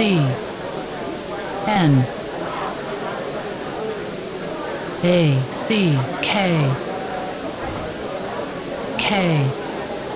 C N A C K K